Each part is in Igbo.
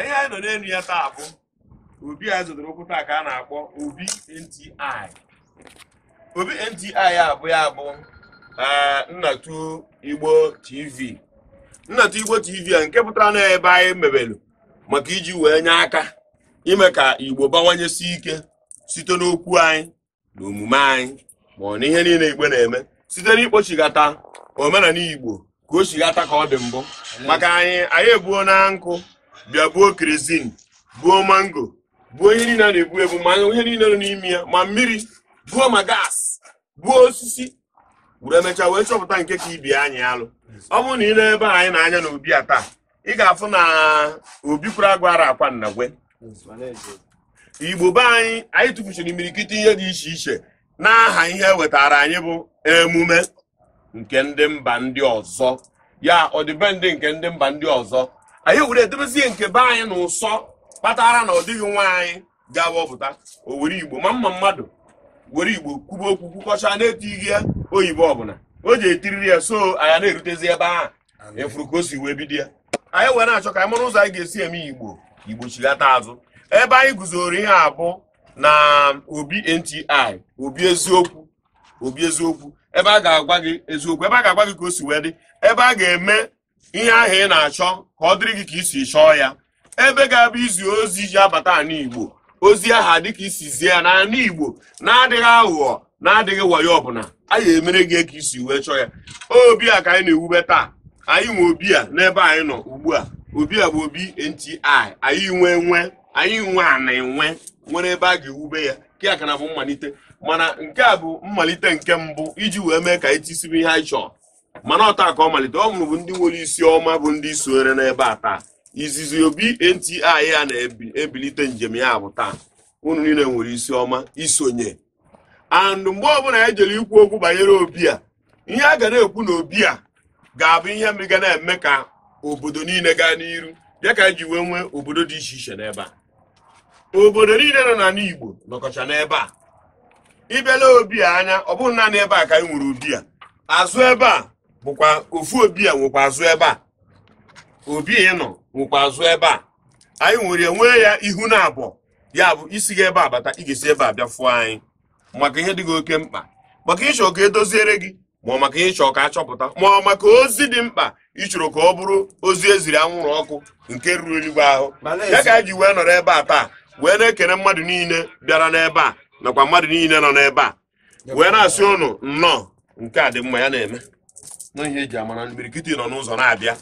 ihe anyị nọ n'elu ya taa bụ obi a zụtara okwu taa ka a na-akpọ obi nti obi nti abụ ya bụ eh, nnatu igbo tv nnatu igbo tv a nke pụtara na ebe anyị mebelu maka iji wee nye aka ime ka igbo bawanyesi ike site n'okwu anyị na omume anyị ma ọ na ihe niile igbo na-eme site n'ikpochigata omenala igbo ka o chigata ka ọ dị mbụ maka anyị anyị ebuo na nkụ bịa gbuo kerozin gbuo mango gbuo ihe niile a na-egbu egbu ma ihe niile nọ n'ime ya ma mmiri gbuo ma gas gbuo osisi were emechaa wee chọpụta nke ka ibi anyị alụ ọ bụrụ na ile ebe anyị na-anya na obi a taa ị ga-afụ na obi kwuru agwara akwa nnagwe igbo be anyị anyị mmiri imirikiti ihe dị iche iche n'aha ihe wetara anyị bụ emume nke ndị mba ndị ọzọ ya ọdịbendị nke ndị mba ndị ọzọ anyị were edobezie nke be anyị na ụsọ kpatara na ọ dịghị nwa anyị ga-awọpụta o were igbo ma mma mmadụ were igbo kwuba okwu kwukọcha na-etighị ya oyibo ọbụla o ji etiriri ya so anyị na-erutezi ebe ahụ efuru ka o si wee bido ya anyị were na-achọ ka anyị mara ụzọ anyị ga-esi eme igbo igbo chigata azụ ebe anyị guzoro ihe abụ na obi nti obi eziokwu obi eziokwu ebe a ga-agwa gị eziokwu ebe a ga-agwa gị ka o si wee dị ebe a ga-eme ihe ahụ ị na-achọ ka ọ dịrị gị ka isi chọọ ya ebe ga-abụ izi ozi ji abata ala Igbo ozi aha dịka isizie ya n'ala Igbo na-adịghị aghụghọ na-adịghị wayo ọbụla anyị emere gị ka isi wee chọọ ya obi a ka anyị na-ewube taa anyị nwe obi a n'ebe anyị nọ ugbu a obi a bụ obi nti anyị nwe nwe anyị nwe ana enwe nwere ebe a ga-ewube ya nke a ka na bụ mmalite mana nke a bụ mmalite nke mbụ iji wee mee ka anyị tisibe ihe anyị chọọ. mana ọta ka ọ malite ọ mụrụ bụ ndị nwere isi ọma bụ ndị sonyere n'ebe a taa izizi obi nti ya na-ebilite njem ya bụ taa ụnụ niile nwere isi ọma isonye and mgbe ọbụla e jere ikwu okwu banyere obi a ihe a ga na-ekwu na obi a ga-abụ ihe ga na-eme ka obodo niile gaa n'iru bịa ka ji wee nwee obodo dị iche iche n'ebe a obodo niile nọ n'ala Igbo nọkọcha n'ebe a ịbịala obi a anya ọ bụghị naanị ebe a ka anyị nwere obi a azụ ebe a bụkwa ofu obi a nwekwa azụ ebe a obi ịnọ nwekwa azụ ebe a anyị nwere nwee ya ihu na abụọ ya bụ isi gị ebe a bata ị ga-esi ebe a bịa fụọ anyị maka ihe dị gị oke mkpa maka ịchọ ka edoziere gị ma ọ maka ịchọ ka achọpụta ma ọ maka ozi dị mkpa ịchọrọ ka ọ bụrụ ozi eziri anwụrụ ọkụ nke ruru eluigwe ahụ ya ka anyị ji wee nọrọ ebe a taa wee na-ekene mmadụ niile bịara n'ebe a nakwa mmadụ niile nọ n'ebe a wee na-asị ụnụ nnọọ nke a dị mma ya na-eme na eji amara imirikiti nọ n'ụzọ na-abịa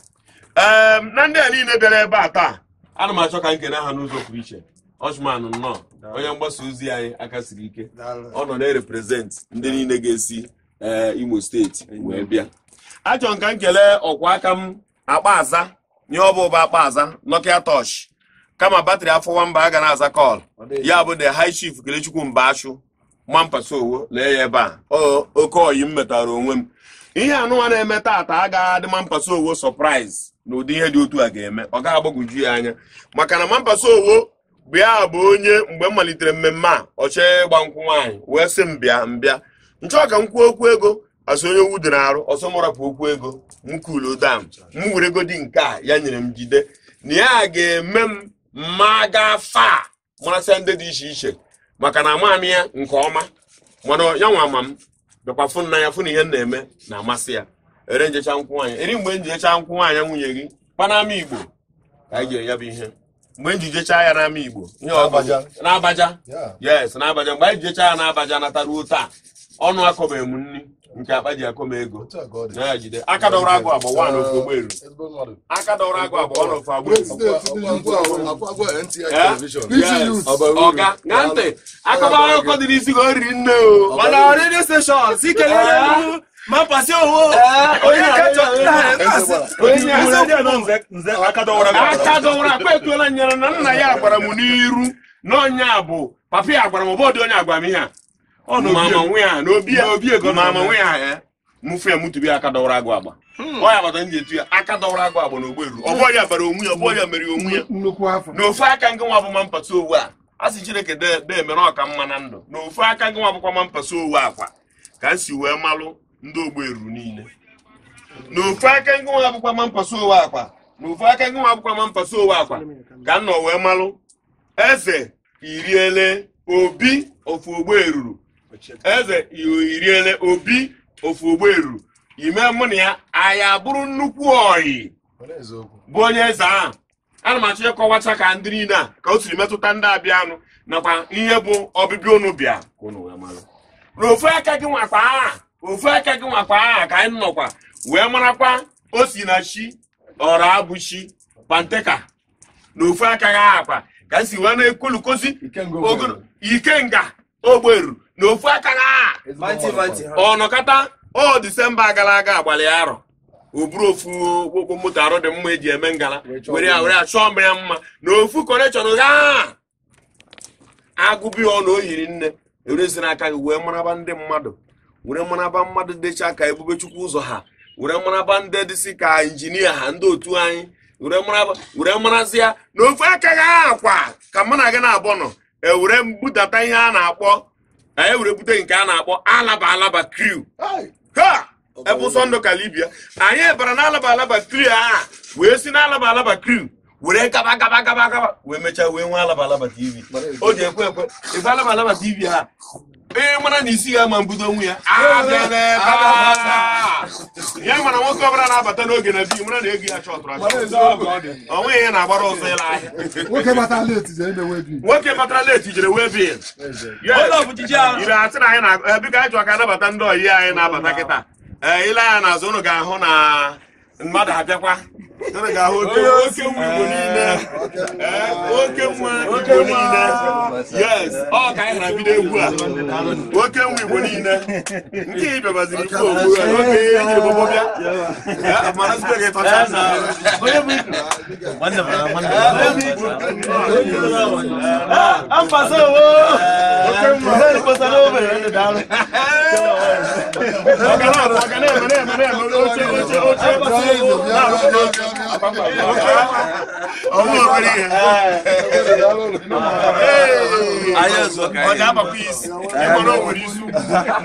ehm, na ndị a niile bịara ebe a taa ana m achọ ka m kene ha n'ụzọ pụrụ iche ọchụmanụ nnọọ onye mgbasa ozi anyị aka siri ike ọ nọ na-ereprezentị ndị niile ga-esi eh, imo steeti wee bịa achọ m nkele m ọkwa aka m akpa aza nye ọ ụba akpa aza nokia tosh kama batrị afọ mba a ga na-aza kọl ya bụ the high chief kelechukwu mba achụ mampa sowo lee ya ebe a oke oyi m metara onwe m ihe anụwa na-eme taata agaghị adị mampaso owo sọpraịz na ụdị ihe dị otu a ga-eme ọ ga-agbagwoju ya anya maka na mampaso owo bịa bụ onye mgbe m malitere mmemme a ọchee ịgba nkwụ nwaanyị wee sị m bịa mbịa nchọọ ka m kwuo okwu ego asị onye owu dị arụ ọsọ m okwu ego m kulu dam m were egodi nke a ya nyere m jide na ya ga-eme m mma gaa faa marasịa ndị dị iche iche maka na amaghị m ya nke ọma mana ya nwa ama m bịakwa fụ nna ya fụ na ihe na-eme na-amasị ya ere njecha nkwụ nwaanyị eri mgbe njecha nkwụ nwaanyị nwunye gị kpa n'ama igbo ka anyị ga-enye bụ ihe mgbe njijecha ya n'ama igbo ihe n'abaja yes n'abaja mgbe anyị jijecha ya n'abaja nataruo taa ọnụ akọbeghị m nri nke akpa ji akọ m ego aka dọrọ agụ agba wa n'ofe ogberu aka dọrọ agụ agba n'ofe agberu ọga na ntị akọba akụkọ dị n'isi ka o riri nne o mana redio steshọn si kelee ya ma pasi owo onye aka dọwara akpa etuola nyere na nna ya agbara m n'iru na onye a bụ papa ya agbara m bọọdụ onye agwa m ihe a Eh. mụfụ ya mụtụbi aka dọwara agba hmm. ọ ya etu ya aka dọwara agba na ogberu ọbọ ya bara onwe ya mere onwe ya aka ngị nwa abụma mpata owu a a sị chineke dee mere ọka mma na ndụ na aka ngị nwa abụkwa mpata owu akwa ka m si wee malụ ndị ogberu niile na aka ngị nwa abụkwa ma mpasa owu akwa na aka nwa ma mpasa owu akwa ka m nọ wee malụ eze iriele obi ofu ogbe ruru eze iriele obi ofu ogberu ime mụ na ya aya bụrụ nnukwu oyi bụ onye eze ahụ ana m achọ ịkọwacha ka ndị niile a ka o siri metụta ndị abịanụ nakwa ihe bụ ọbịbịa unu bịa na aka gị nwakwa aha ofu aka gị nwakwa aha ka anyị nọkwa wee marakwa o si na chi ọra abụ chi panteka na ofu aka gị aha ka si wee na-ekwulukozi ikenga ogberu n'ofu aka na ọ ọ disemba gara aga agbalị arọ oburu ofu ụkwụ moto arụ dị mma eji eme ngala were ya were ya chọọ mma na ofu konechọn gaa agụbi ọ na o yiri nne erezi n'aka gị wee mmanaba ndị mmadụ were mmanaba mmadụ dịcha ka ebube chukwu ụzọ ha were mmanaba ndị dịsị ka injinia ha ndị otu anyị were marazi ya na ofu aka gị akwa ka mụ na gị na-abọ nọ ewere mbudata ihe a na-akpọ na e were bute nke a na-akpọ alaba alaba kriu ebe ụsọ ndụ kalibia anyị bara na alaba alaba kriu a wee si na alaba alaba kriu were gaba gaba gaba gaba wee mechaa wee nwee alaba alaba tv o ji ekwe ekwe ebe alaba alaba tv a. ee eh, mara na isi ga-ama mbido onwe ya ya mara ah, ah, nwoke ọbụla na-abata n'oge na bi mara na ego ya chọtụrụ onweghị ya na-agbara ọzọ ịla ahịa nwoke batara leti jere wee bi ire asị na anyị na e, biko anyị chọọ ka n'abata ndị oyi anyị na-abata kịta ee ile anya n'azụ ụnụ ga-ahụ na mmadụ abịakwa unu ga-ahụ oke nwa e, igbo niile ọ ka anyị na bido egwu a oke nwa igbo niile nke ị bịabaziri ikwu ogbu a n'oge ihe eji ebogbo bịa mana site gị tọcha na eme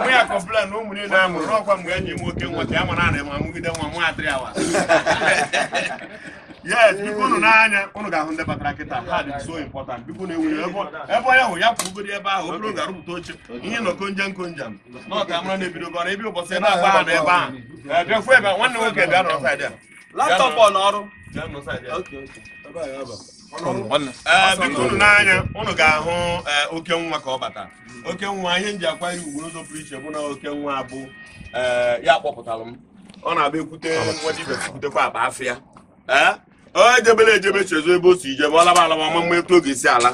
ya kọmplan na ụmụ niile a mụrụ ọkwa mgbe enyi m nwoke ọ a mara ana ma mụgide nwa nwa atịrị awa yes biko unu n'anya unu ga-ahụ ndị batara kịta ha dị so important ọ na enwere ebe onye ahụ ya pụrụgoro ebe ahụ obere oge arụpụta oche ihe nọ konje nkonje na ọka mara na ebe ụbọchị na agba ha na ebe ahụ bịafu ebe nwoke bịa laptọpụ ọ n'ọrụ biko unu n'anya unu ga-ahụ eh, oke nwa ka ọ bata oke nwa ihe m ji akwanye ugbo n'ụzọ pụrụ iche bụ na oke nwa bụ eh, ya kpọpụtara m ọ na-abịa ekwute nwa dibia kwutekwa akpa afịa eh? o ejebela ejebe chezo ebe o si ije ma ọ laba alaba ma mma etu oge isi ala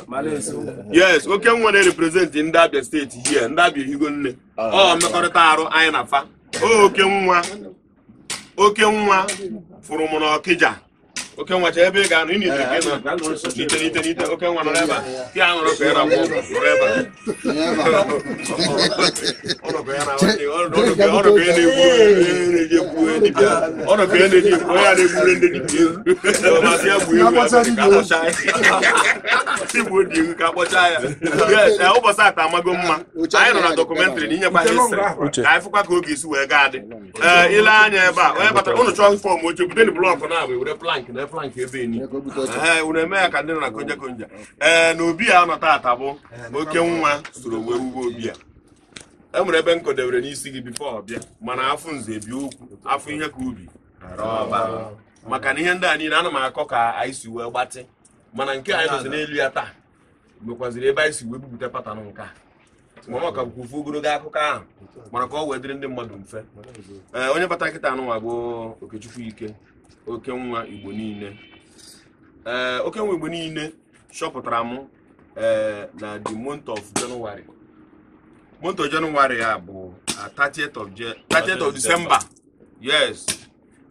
yes oke nwa na-reprezentị ndị abịa steeti hie ndị abịa ehigo nne ah. ọ mmekọrịta arụ anyị na fa oke nwa oke nwa furumuno kija oke nwa ebe ị ga i ị na-ite n'ite n'ite oke nwa nọrọ ebe a ti a ka ịra gwụ nọrọ ebe ka eji ekwuwe ka na-eji ekwuwe ya na-egbure ndị dibịa ya ka dị ka ụbọchị ata amago mma anyị nọ na dọkụmentrị na inyekwa ka anyị fụkwa ka oge isi wee gaa dị ile anya ebe a onye batara ụnụ chọọ fọm oche bute blọk na-abụ flank ebe enyi unu eme ya ka ndị na ee na obi a nọ taata oke nwa soro wee wuwe obi a e nwere ebe nkodebere n'isi gị bifo ọbịa mana afọ nze bịa okwu afọ ihe ka ubi maka na ihe ndị a niile ana m akọ ka anyị si wee gbatị mana nke anyị nọzi n'elu ya taa mekwaziri ebe anyị si wee bupụta patanụ nke a mama ka bụkwa ofu ogologo akụkọ ahụ mana ka ọ wee dịrị ndị mmadụ mfe ee onye bata nkịta anụnwa bụ Okechukwu Ike oke nwa igbo niile ee eh, oke igbo niile chọpụtara m ee eh, na the month of January ya bụ 30th ah, of December yes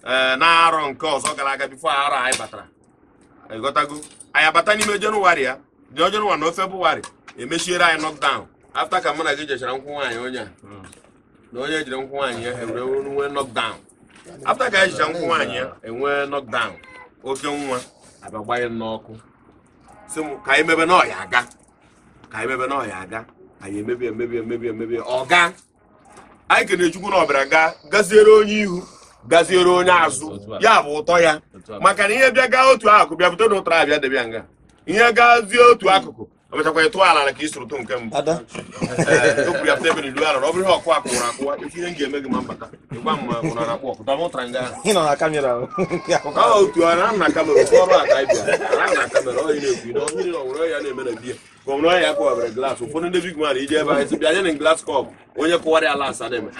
ee eh, na-arọ nke ọzọ gara aga bifo arọ anyị batara ịghọtago anyị abata n'ime January ya dị January na February emechiere anyị knockdown afta ka mụ na gị jechara nkwụ nwaanyị onye a hmm. na onye jiri nkwụ nwaanyị ya ewere nwe afta ka anyị jicha nkwụ nwaanyị ya enwee nọkdaụn oke nwa abagbaghị n'ọkụ si m ka anyị mebe n'ọhịa aga ka anyị mebe n'ọhịa aga anyị emebi emebi emebi emebi ọga anyị kene chukwu na ọbịara ga gaziere onye ihu gaziere onye azụ ya bụ ụtọ ya maka na ihe bịa gaa otu akụkụ bịa bute na ụtara abịa debịa nga ihe gazie otu akụkụ emechakwa ị tụọ ala ka ị sụrụ tụ nke mbụ okwu eh, e ya pụta ebe na ala ọ bụrụ ihe ọkụ akụwụrụ akụwa ife ihe m ga-eme gị ma mbata ịgwa m ma ụra na ọkụ ahụ na otu a na na kamera otu ọrụ aka ịbịa na na ọ na na ọwụrụ ya na-eme na gọmna ọhịa kụwabere ụfọdụ ndị ebe anyị na kọp onye kụwara ala asa na-eme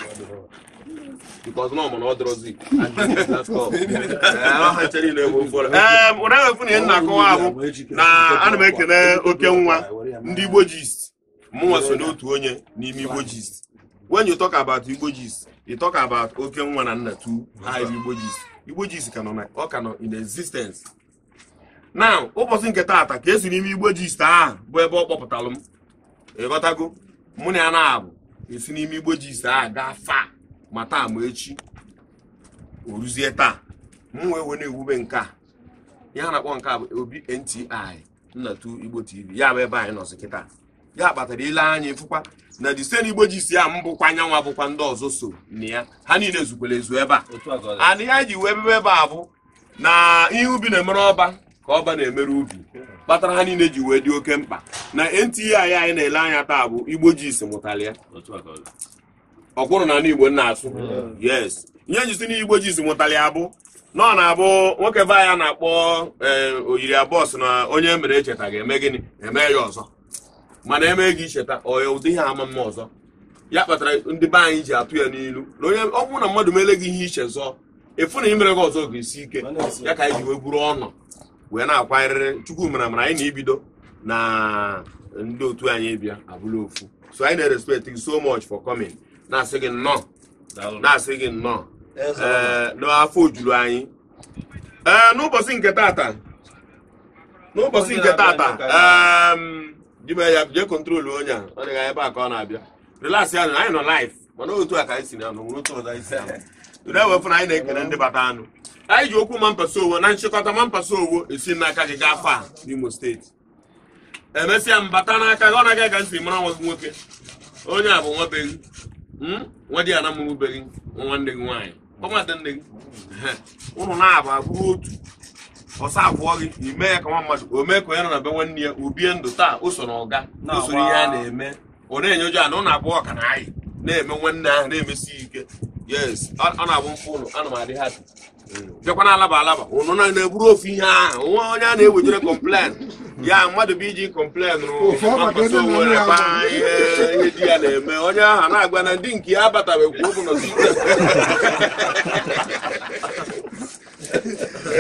ee ụra efu na ihe na-akọwa bụ na ana m oke nwa ndị Igbo gist mụnwa so n'otu onye n'ime Igbo gist when you talk about Igbo gist you talk about oke nwa na nna tu ha bụ Igbo gist Igbo gist ka nọ in existence now ụbọchị nke taata ka esi n'ime Igbo gist ahụ bụ ebe ọ kpọpụtalụ m ịghọtago mụ na ya na-abụ esi n'ime Igbo gist ahụ gaa faa ma taa ma echi o ruzie taa m wee wee na-ewube nke a ihe a na-akpọ nke a bụ obi nti nnatu igbo tv ya bụ ebe anyị nọzi kịta ya kpatara ile anya ịfụkwa na disen igbo ji si ya m bụkwa anyanwụ abụkwa ndị ọzọ so na ya ha niile zukwara ezu ebe a ana ya ji wee bebe ebe a bụ na ihe ubi na-emere ọba ka ọba na-emere ubi kpatara ha niile ji wee dị oke mkpa na nti anyị anyị na-ele anya taa bụ igbo ji si mụtara ya ọkwụrụ na igbo nna asụ mm. yes nye njisi n'igbo ji mụtali abụ nọ na abụ nwoke be na-akpọ e, oyiri abụọ sị na onye e mere echeta ga-eme gịnị eme ya ọzọ mana eme gị icheta oya ụdị ihe ama mma ọzọ ya kpatara ndị be anyị ji atụ ya n'ilu na onye ọgwụ na mmadụ meele gị ihe iche zọọ efu na imere gị ọzọ ga-esi ike ya ka anyị ji wee buru ọnụ wee na-akwanyerịrị chukwu mere mana anyị na-ebido na ndị otu anyị bịa abụla ofu so anyị na-respect so much for coming na-asị gị nnọọ na-asị gị nnọọ n'afọ ojuru anyị ee n'ụbọchị nke tata n'ụbọchị nke tata dime ya jee kọntrolu onye a ọ dịghị ebe a ka ọ na-abịa relax ya anyị nọ laif mana otu a ka anyị si na anụ nwere otu ọzọ anyị si anụ na anyị na-ekele ndị bata anụ anyị ji okwu mampasa owo na nchịkọta mampasa owo esi n'aka gị gaa faa n'imo steeti emesịa mbata n'aka gị ọ na-agaghị ka ntị mara nwa nwoke onye a bụ nwabeghị Hmm? nwa di ana mụrụbeghị nwa nwanne gị nwaanyị gbanwata nne gị ụnụ na-abụ abụrụ otu ọsọ abụọ gị ime ya ka nwa mmadụ o mee ka onye nọ na be nwanne ya obie ndụ taa o so na ọga o ihe a na-eme ọ na-enye ụjọ na ụnụ abụọ ka na anyị na-eme nwanne ahụ na-emesi ike yes ọ na-abụ mfe ụlọ ana m adị ha hmm. bịakwa alaba alaba ụnụ na-eburu ofu ihe ahụ nwa onye a na-ewejere kọmplen ya mmadụ bụ iji kọmplen were kpaa ihe di ya na-eme onye ahụ na-agwa na ndị nke ya abatabeghị kwa ụbụ na a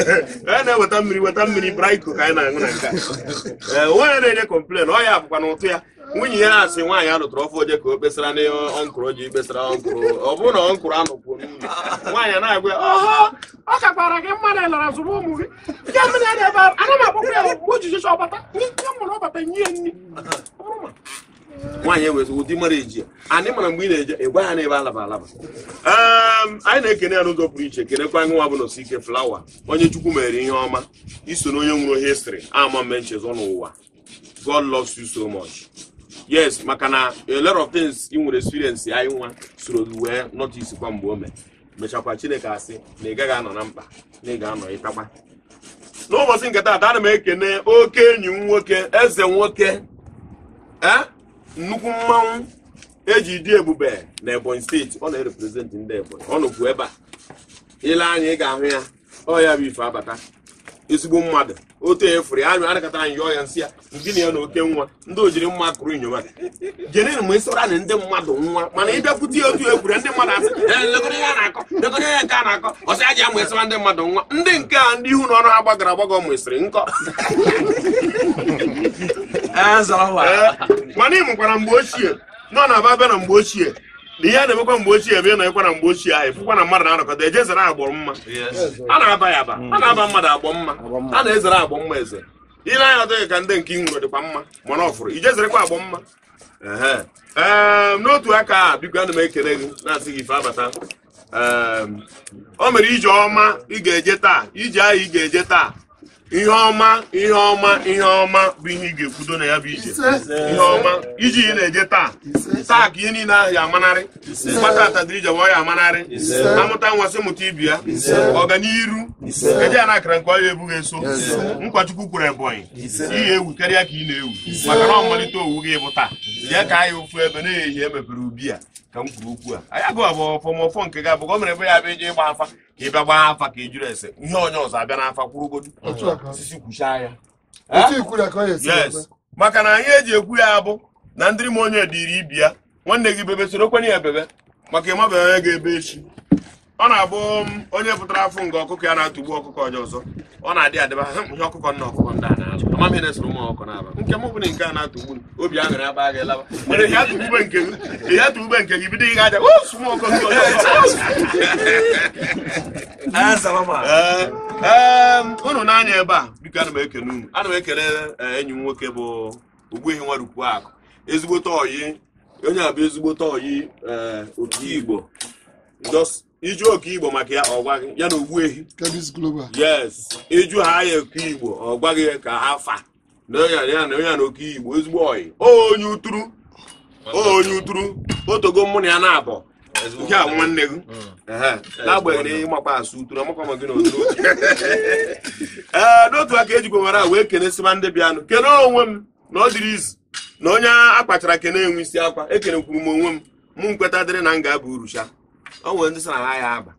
eh, na-eweta mmiri weta mmiri braiko ka anyị na-aṅụ na nke a eh, nwaanyị na-enye kọmplen ọ ya bụkwa na ụtụ ya nwunye ya na-asị nwaanyị a lụtụrụ ọfọ oje ka o kpesara na ọnkụrụ ji kpesara ọnkụrụ ọ bụrụ na ọnkụrụ anọkwuo n'ụlọ nwaanyị na-agwa ọ kakwara gị mmadụ ịlara zụrụ ụmụ gị ana m agbakwa ya ojiji ọbata nye mụrụ ọbata nye ya nri nwaanyị ewe ụdị mara eji anyị mara mgbe ị na-eje ịgwa ya na ebe alaba alaba ehm, anyị na-ekene ya n'ụzọ pụrụ iche kenekwa nwa bụ na osike flawa onye chukwu mere ihe ọma iso na onye nwụrụ histrị ama mme nchezọ n'ụwa god loves you so much yes maka na a of things ị nwere experience anyị nwa soro wee notice kwa mgbe o mechakwa chineke asị na ị gaghị anọ na mkpa na ị ga-anọ ịtakwa n'ụbọchị nke ata ana m ekene oke enyi m nwoke eze nwoke ee eh? nnukwu mmanwụ eji dị ebube na ebonyi steeti ọ na-ereprezentị ndị ebonyi ọ nọkwu ebe a ile anya ị ga-ahụ ya ọ ya bụ ife abata ezigbo mmadụ otu efuru ya anyụ anakọta anyị yọọ ya nsị ya ndị na ya na oke nwa ndị ojiri mma kụrụ inyoma jenere ma ịsọra na ndị mmadụ nwa mana ịbịakwute ya otu ekwure ndị mmadụ asị elekọta ya na-akọ lekọta ya nke a na-akọ ọsị aji ama ịsọra ndị mmadụ nwa ndị nke a ndị ihu na ọnụ ha gbagara agbaga ọ mụsịrị nkọ Eh, mana ị mụkwara mgbe ochie nọ na aba bịa na mgbe ochie na ihe a na-emekwa mgbe ochie ebe na-emekwa na mgbe ochie ahụ ịfụkwa na mmadụ na-anọkọta eje ezere agbọ mma a na-aba ya aba a na-aba mmadụ agbọ mma a na-ezere agbọ mma eze ị na-anya adịghị ka ndị nke nwere dịkwa mma mana ọfụrụ ije zerekwa agbọ mma ee ehm, n'otu aka a biko ana m ekele gị na-asị gị ife abata ehm, o mere ije ọma ị ga-eje taa ije ahụ ị ga-eje taa ihe ọma ihe ọma ihe ọma bụ ihe ị ga-ekwudo na ya bụ ije ihe ọma iji ị na-eje taa taa ka ihe niile ahụ ya amanarị mkpata atadịrija wa ya amanarị amụta nwasị mụta ibi ya ọganiru eje ya na akara nke ọya ebughị eso nkwachukwu kwuru ebonyi ihe ewu karịa ka ị na-ewu maka na ọmalite owu gị bụ taa ya ka anyị ofu ebe na-ehi emepere e ubi ya ka m kwuru okwu a "anya agụ abụ ọfọmọfọ nke gị abụ gọọmenti ebe ya bịa eje ịgba afa ka ị bịa gbaa afa ka e juru ese ihe onye ọzọ abịa n'afa kwụrụgodu osisi kwuchaa ya maka na anyị eji ekwu ya abụ na ndị m onye iri ibi ya nwanne gị bebe soro kwenye ya bebe maka ịmabeghị onye ga-ebe echi ọ na-abụ um, onye pụtara afọ nga ọkụkọ ya na-atụgbu ọkụkọ onye ọzọ ọ na-adị adịba ha mkpụhe ọkụkọ nna ọkụkọ ndị a na-alụ amamihe na-esoro ụmụ ọkụ na-aba nke m bụrụ nke a na-atụgbu atụ obi aṅụrị aba gị laba mana ihe atụgbube nke gị ihe atụgbube nke gị bido ihe aja osu oh, ụmụ ọkụkọ nke onye unu na-anya ebe a biko ana m ekele unu ana m ekele e, enyi m nwoke bụ Ogbuehi Nwadukwu Akụ ezigbote oyi onye a bụ ezigbote oyi e, otu Igbo just iju oke igbo maka ya ọ gwaghị ya na ogbu ehi yes iju ha ya oke igbo ọ gị ka ha fa na ya na onye na oke igbo ezigbo oyi onye uturu onye uturu otogo mụ na ya na-abọ nke a nwanne gị na-agbaghị mm. n'agbanyeghị ịmakwa asụ uturu amakwa ma gị na oturu ee n'otu aka ejikwa mara wee kenesịma ndị bịanụ kene onwe m na ọ dịrị izu na onye a kpachara kene enwe isi akwa e kwuru m onwe m mụ nkweta dịrị na m ga-aba urusha o nwere ndị sị na ha ya aba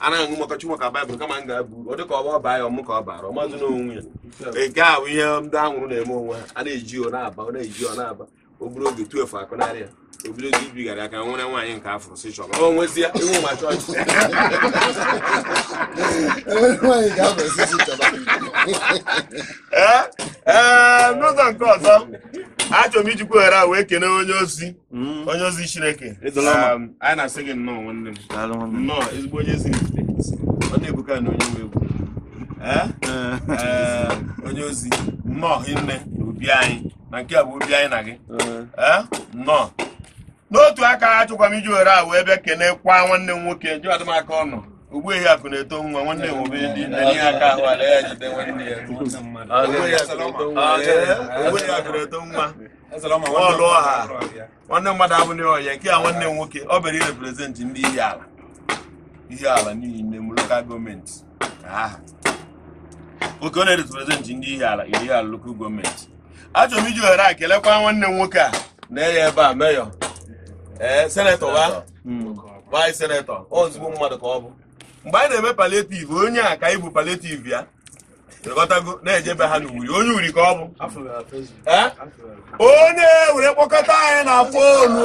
anaghị aṅụ maka chukwu maka baịbụl kama m ga abụ uru ọ dị ka ọ ọba ya ọmụ ka ọ bara ọmadụ n'onwe ya nke a bụ ihe ndị anwụrụ na-eme onwe ha a na-eji ọ na-aba ọ na-eji ọ na-aba obere oge tuefu akụnarị ya obido oge ibigara aka nwere nwaanyị nke afọ si chọba ọ nwezie iwu ma chọọchị ee eh, eh, n'ụzọ nke ọzọ achọrọ m iji ohere a wee kelee onye ozi hmm. onye ozi chineke um, anyị na-asị gị nnọọ nwanne m nnọọ ezigbo onye ozi ọ na-ebuka na onye nwe egwu eh? Eh, onye ozi nnọọ nne na obi anyị na nke a bụ obi anyị na gị eh. nnọọ n'otu aka achọkwa m iji ohere a wee bịa kelee kwa nwanne m nwoke jụ adịmaka ọ nọ ugbu ehi akụ na-eto nwa nwanne ya ndị dị ihe aka ahụ ala ya jide nwanne ya ugbu ehi akụ na-eto nwa ọlụ ọha nwanne mmadụ abụghị ọhịa nke a nwanne m nwoke ọ bịara ireprezentị ndị ihe ala ihe ala niile m lokal gọọmenti oke ọ na-ereprezentị ndị ihe ala ihe ala lokal gọọmenti achọrọ m iji ohere a kelekwa nwanne m nwoke a na-enye ebe a meyọ ee senetọ ha vaịs senetọ ozugbo mmadụ ka ọ bụ mgbe anyị na-eme paletiv onye a ka ịbụ paletiv ya lekọtago na-ejebe ha n'uri onye uri ka ọ bụ onye were kpọkọta anyị na fonu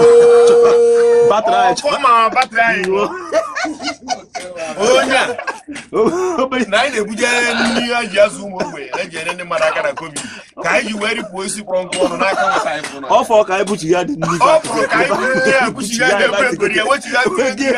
onye na anyị na-ebujere nri a ji azụ ụmụ ogbenye na-eji ere ndị mmadụ aka na kobi ka anyị ji wee ripụ osisi kpọrọ nkụ ọnụ n'aka ọ fọrọ ka anyị buchigha dị nri ọ fọrọ ka anyị buchigha dị nri ya buchigha dị nri ya wechighị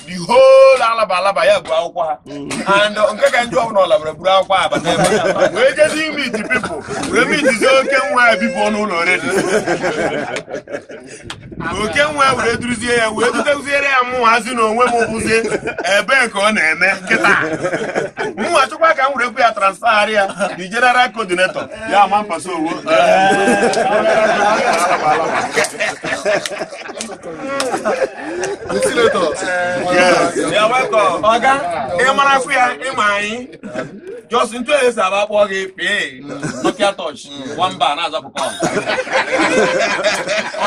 the whole alaba alabalaba ya bụ akwụkwọ and uh, nke ka ndị ọbụla ọlabara buru akwụkwọ ha bata ebe wee jezi imit pipụl wee mitizi oke nwa ebipụ n'ụlọ redi oke nwa were duruzie ya wee duteziere ya mụnwa hazi na onwe m bụzie ebe nke ọ na-eme nkịta mụnwa chụkwa ka m were kwu ya transfagharị ya the general coordinator ya ama mpasa owo Ventilator. ọga ị mara afọ ya ịma anyị jos ntụ esi aba kpọọ gị pee nokia touch nwamba na-azapụkọ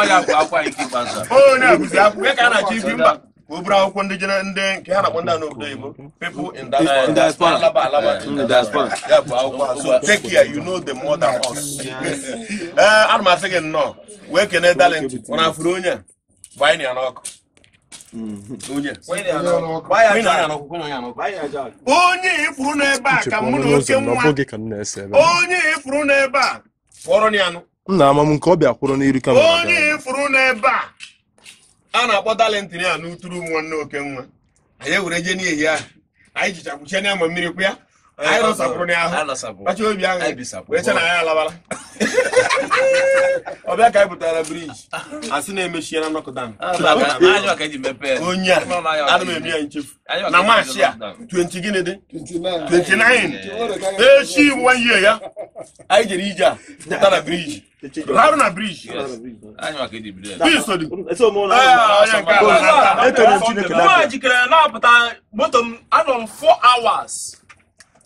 ọya bụ akwa nke ikpeazụ akwụkwọ ka a na-achọ ibi mba ka o buru akwụkwọ ndị jere ndị nke ha na-akpọ ndị anụ obodo oyibo alaba ya bụ akwụkwọ so take care you know the us ee eh, m gị nnọọ wee kene talent ọ na-afụrụ onye a na ya n'ọkụ onye ifuru n'ebe a ka mụ na oke nwa onye ifuru n'ebe a nna ama m nke ọ bịa kwụrụ n'iru kamera onye ifuru n'ebe a a na-akpọ talentị ya n'uturu nwa nne oke nwa anyị ewere jee n'ihi ya anyị jichakwuchie ama mmiri kwa ya Eh, ayo anyị rọsapụrụ n'ahụ kacha obi aṅụ wee che na Ayo alabala ọbịa ka anyị pụtara briji asị na-emechie na nọkụdan onye a ana m eme ya nchefu na maachị a 20 gịnị dị 29 echi nwa ihe ya anyị jere ije a pụta na briji Raru na bridge. Biso dị. Onye Ayo ala. Ejikere na-apụta moto m anọ m 4 hours.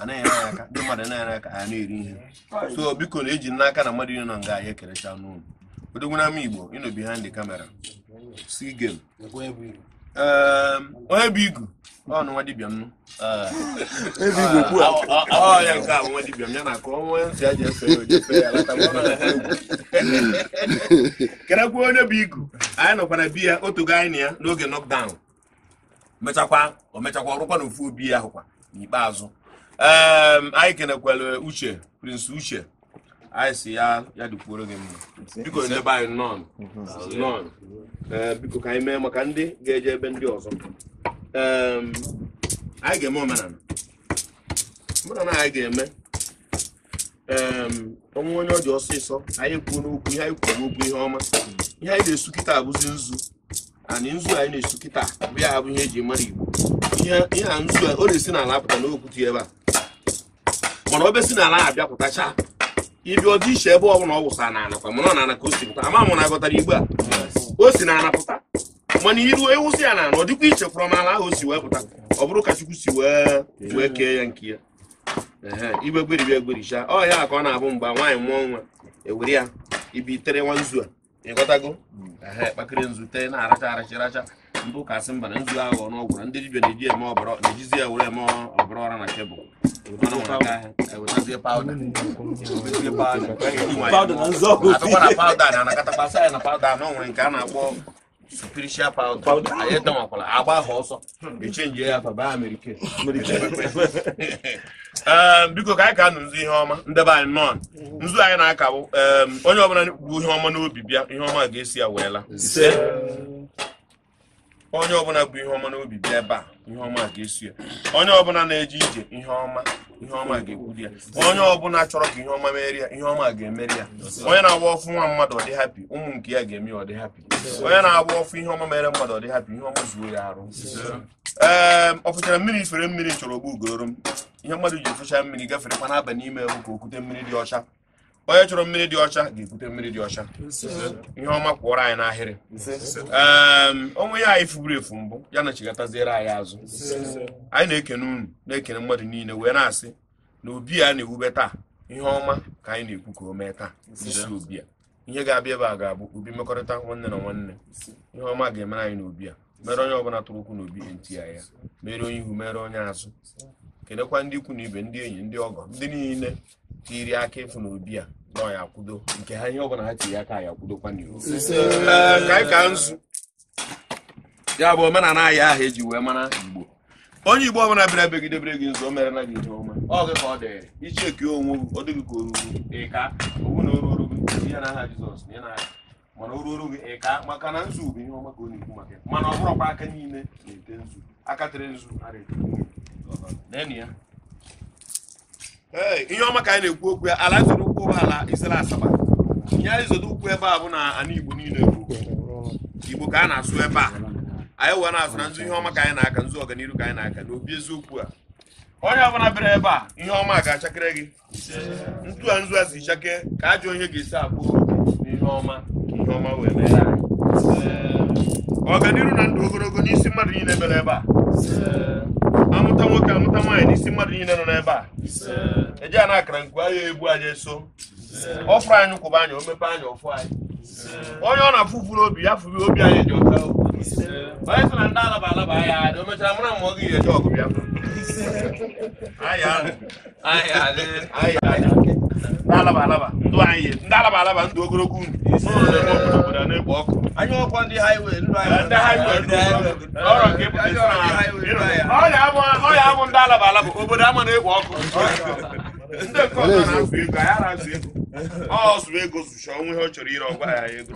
anaghị ere aka ndị mmadụ na-ere aka ha na-eri ihe so biko na eji n'aka na mmadụ nọ nga ya ekerecha n'ụlọ odogwuna ama igbo ịnọbi ha ndị kamera si gem um, onye bụ igu ọ nụ nwa dibịa m ọ ya nke a nwa m ya na ka ọnwa nsị ya ji efe ya lata kerekwa onye bụ igu anyị nọkwara ya otogo anyị na ya n'oge nọkdaụn mechakwa o mechakwa ọrụkwa na ofu obi ya ahụkwa n'ikpeazụ Ehm, anyị kenekwere uche prince uche anyị si ya ya dịkwuoro gị mma biko ndebe anyị nọn mhm. nọn ehm, biko ka anyị mee maka ndị ga-eje ebe ndị ọzọ ehm, anyị ga-eme omenala omenala anyị ga-eme ọnwụ onye ọ dị ọsịsọ anyị kwuo n'okwu ihe anyị kwuo n'okwu ihe ọma ihe anyị na-esu kịta abụzi nzu anyị nzu anyị na-esu kịta bụ ya bụ ihe eji mara igbo ihe a nzu ọ na-esi n'ala apụta n'okwutu ebe a mana obe si n'ala abịa pụtacha ịbịa ọdị iche ebe ọbụla ọ wụsa na anakwa mana ọ na-ana ka o si pụta ama m na agọtara igbe a o si na anapụta mana iru ewusi ya na ana ọ dịkwa iche kwụrọ m ala ahụ o si wee pụta ọ bụrụ ka chukwu si wee wee kee ya nke ya igbe gberibia egbericha ọ ya ka ọ na-abụ mgbe nwaanyị mụọ nwa ewere ya ibi tere nwa nzu a ịghọtago kpakịrị nzu tee na-aracha aracha aracha mbụ ka asị mba na nzu aghọ n'ọgwụ na ndị dibịa na-eji eme ọbara na-ejizi ya were eme ọbara ọra na tebụl e pawda na ya na nwere nke a na-akpọ spiritual powder anyị edomakwala agba ha ọsọ echenji ya ehm, biko ka anyị ka nụ nzu ihe ọma ndebe anyị nọn nzu anyị na-akabụ ehm, onye ọbụla bụ ihe ọma n'obi bịa ihe ọma ga-esi ya weela onye ọbụla bụ ihe ọma n'obi bịa ebe a ihe ọma ga-eso ya onye ọbụla na-eje ije ihe ọma ihe ọma ga-ekwuri ya onye ọbụla chọrọ ka ihe ọma merie ya ihe ọma ga-emeri ya onye na-agba ọfụ nwa mmadụ ọ dị hapi ụmụ nke ya ga-eme ọ dị hapi onye na-agba ọfụ ihe ọma mere mmadụ ọ dị hapi ihe ọma zuo ya arụ ee ehm, ọ fụchara mmiri ifere mmiri chọrọ ogbu ugoro m ihe mmadụ ji efụcha mmiri gafere kwa n'abalị n'ime ka okwute mmiri dị ọcha onye chọrọ mmiri dị ọcha ga-ebute mmiri dị ọcha ihe ọma kwụọrọ anyị n'ahịrị onwe ya anyị fuburu efu mbụ ya na chigataziere anyị azụ anyị na-ekene unu na-ekene mmadụ niile wee na-asị na obi a na-ewube taa ihe ọma ka anyị na-ekwu ka o mee taa isi obi ihe ga-abịa ebe a ga-abụ obi mmekọrịta nwanne na nwanne ihe ọma ga-emere anyị obi a mere onye ọbụla tụrụ na n'obi ntị ya mere onye ihu mere onye azụ kelekwa ndị ikwu na ibe ndị enyi ndị ọgọ ndị niile tiri aka na obi a nọ ya kwudo nke ha ihe ọbụla ha tiri aka ya kwudokwa n'iwu ka anyị ka nzu ya bụ omenala ahịa ahụ eji wee mara igbo onye igbo ọbụla bịara begidebere gị nzu o mere na gị ihe ọma ọ gị ka ọ dị ichi eke onwe gị ọ dịghị ka o ruru ịka owu na oruru gị ihe na aha jizọs na ịna mana o ruru gị ịka maka na nzu bụ ihe ọma ka ọ na-ekwu maka mana ọ bụrụkwa aka niile na-ete nzu aka tere nzu ara ete ihe ọma ka anyị na-ekwu okwu ya ala zoro ụkwụ ala isere asaba ihe anyị zodo ụkwụ ebe a bụ na ana igbo niile igbo ka a na-asụ ebe a anyị wee na-asụ na nzu ihe ọma ka anyị na-aka nzu ọganiru ka anyị na-aka n'obi eziokwu a onye ọbụla bịara ebe a ihe ọma ga-achakere gị ntu a nzu a si chake ka ajụ ihe ga-esi abụ n'ihe ọma ihe ọma wee mere ọganiru ọganihu na ndụ ogologo n'isi mmadụ niile bịara ebe a amụta nwoke amụta nwaanyị n'isi mmadụ niile nọ n'ebe a eji a na-akara nku agha ebu anyị eso ọfụrụ anyị kwụba anyị o anyị anya ọfụ anyị onye ọ na-afụ furu obi ya furu obi anyị ji ọka onye sị na ndị alaba alaba ahịa adị o mechara mara ma ọ gị ga-eje ọgụ bịa ndị alaba alaba ndụ anyị ndị alaba alaba ndụ ogologo unu obodo na-ekpo ọkụ anyị ọkwa ndị highway ọ ya abụ ndị alaba alaba obodo ama na-egwe ọkụ Ndị ego anaghị ego ọsụ ego zụcha ọnwa ihe ọ chọrọ ire ọgba ya ego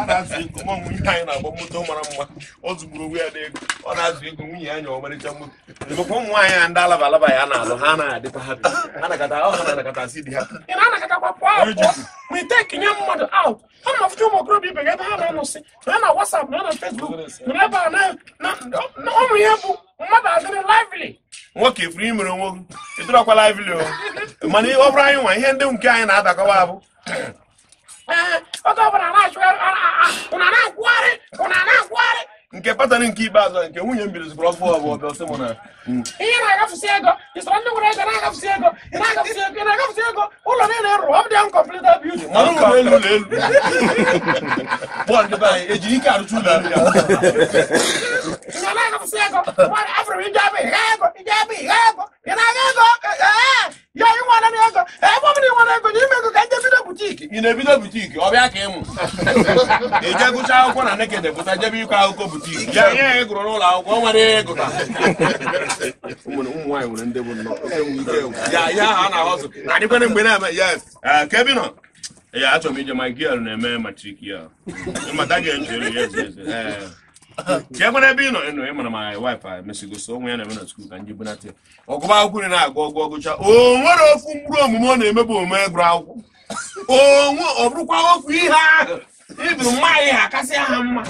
a na-azụ ego ma nwunye anyị na-agba moto mara mma ọ zụgburu onwe ya na ego ọ na-azụ ego nwunye ya nya ọmarịcha moto mekwa ụmụ nwaanyị a ndị alaba alaba ya na-alụ não anaghị o hapi ha nakata ọ ha na-anakata si di ha ị na-anakatakwa pụọ ma ite kenye mmadụ out ha na-afụcha ụmụ okorobịa ibe gị ebe ha na-anọsị na na wasap na na fesbuk na ebe a na ụmụ ihe bụ mmadụ adịrị lively nwoke ifuru imere onwe gị ịdịrọkwa lively o mana ọ bụrụ anyị nwa ihe ndị nke anyị na-adakọwa abụ eh, oge ọbụla o na-akwụgharị ụna na-akwụgharị nke patan nke ikpeazụ nke nwunye m bidozikwara ọfụ ọbụ ọbịa ọsị mụ na hmm. ihe na-agafụsi ego isoro ndị nwere ego na-agafụsi ego ị na-agafụsi ego ị na-agafụsi ego ụlọ niile rụrụ ọ dị nkọmplita bildin mara ụlọ elu ụlọ elu bọọlụ nke be anyị ejiri ike arụcha ụlọ ya afro ndị abụ ihe ego ndị abụ ihe ego ị na-aga ego eh, eh. ya ị na ego ebe ọ bụla ị nwere ego ya ime ego ka ndị bido butiki ị na-ebido butiki ọ bịa ka ịmụ ije gụcha akwụkwọ na nekede pụta jebe ikwe akụkọ butiki ya ya ị n'ụlọ akwụkwọ nwere ego ka ụmụ nwaanyị nwere ndị bụ nnọọ ya ya ahụ a na-ahọzụ na-adịkwana mgbe na-eme ya ka ebe nọ ya achọrọ m ije ma gị na-eme matrik ya mata ya E ka e nwere ebe ị nọ ịnọ ịmara ma anyị waịpa mesigosi onwe ya na-eme na skul ka ndị bunata ọgụba akwụkwọ ị na-agụ ọgụ ọgụcha o nwere ofu mkpụrụ omume ọ na-emebe omume gụrụ akwụkwọ ọ bụrụkwa ofu ihe ahụ iburu nwaanyị ha kasị mma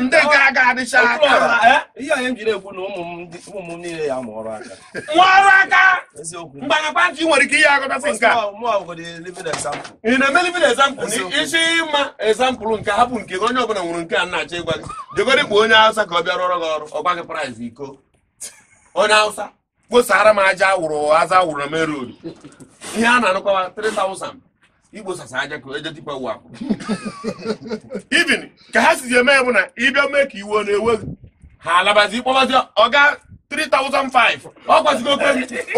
ndị gara aga adịcha aka ihe anyị jiri ekwu na ụmụ m niile ya aka aka mgbanakwa ntị nwere ike ihe agụtasị nke ị na-eme livin ezampụl isi ịma ezampụl nke hapụ nke gị onye ọbụla nwere nke a na-achọ ịgwa gị jegoro onye awụsa ka ọ bịa rụọrọ gị ọrụ ọgba iko onye awụsa kposara m aja awụrụ aza awụrụ na ihe a na-anụkwa igbo sasa aja ka eje tipa ụwa ibin ka ha sizi eme ya bụ na ịbịa mee ka iwe na ewe ha alabazi kpọbazi ọga 3005 ọ gwazigo okwe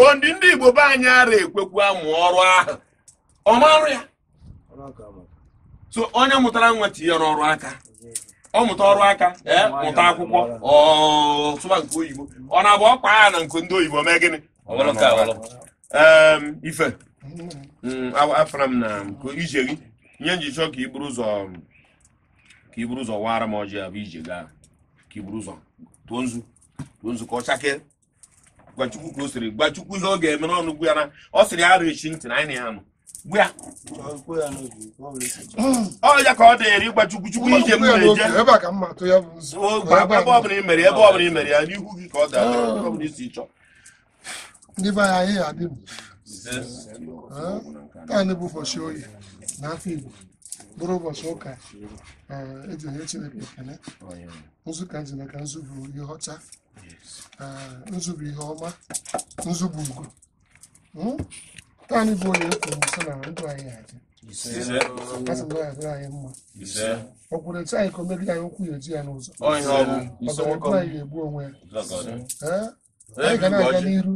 ondi ndị igbo be anyị ara ekwekwu amụ ọrụ ahụ ọ marụ ya so onye mụtara nwa tinye n'ọrụ aka ọ mụta ọrụ aka ee mụta akwụkwọ ọsụba nke oyibo ọ na-abụ ọkpa ya na nke ndị oyibo mee gịnị ọ ife Mm, afara m na nke ije gị nye njichọ ka iburu ụzọ ka iburu ụzọ waara m ọjị abụ ije gaa ka iburu ụzọ tụọ nzu tụọ nzu ka ọ chakee gwachukwu ka o siri gbachukwu ihe ọ ga-eme n'ọnụ gwu ya na ọ sịrị arụ echi ntị na anyị na ya nọ gbu ya ọ ya ka ọ dịnyere ịgbachukwu chukwu ije m na-eje ebe ọbụla imere ebe ọbụla imere ya n'ihu gị ka ọ ga-adịrị isi chọọ ndị be anyị adịbụ taa bụ ụbọchị oyi na afọ Igbo bụrụ ụbọchị ụka eji eh, onye Chineke ekele nzu ka nji maka nzu ihe ọcha eh, nzu ihe ọma nzu ugo Taanị hmm? bụ onye kwuru nso na ndụ anyị aja asị na ọya anyị mma ọ kwụrụ etu anyị ka o megide anyị ụkwụ ya eji ya n'ụzọ ọ ga-egbu anyị ga-egbu onwe ya ee, eh? anyị ga na-aga n'iru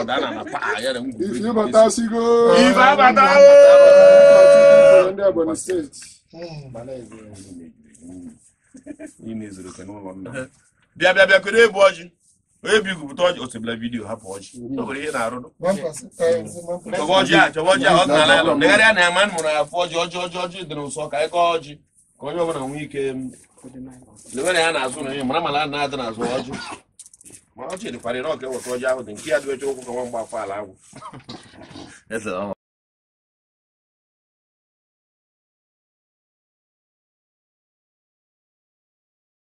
ọ̀daràn na pa àyẹ̀ rẹ̀ ń gbé. ìfì bàtà sí kó. ìfà bàtà ó. ọ̀dọ́ àbọ̀nì state. bịa bịa bịa kere ebu ọjị onye bụ igwupụta ọjị osebila vidiyo hapụ ọjị o nwere ihe na-arụ chọba ọjị a chọba ọjị um, a ọ nara ya negharịa na ya ma mụrụ ya fụ ọjị ọjị ọjị ọjị dị n'ụsọ ka anyị kọọ ọjị ka onye ọbụla nwee ike lewere ya na-azụ na ihe mara mara na-adị n'azụ ọjị ma ọ chịrịkwara na ọka enwekọ ọjọ ahụ dị nke ya dị oche ụkwụ ka nwa mgba akwala agwụ